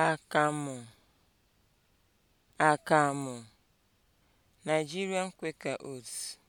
akamụ akamụ Nigerian Quaker oats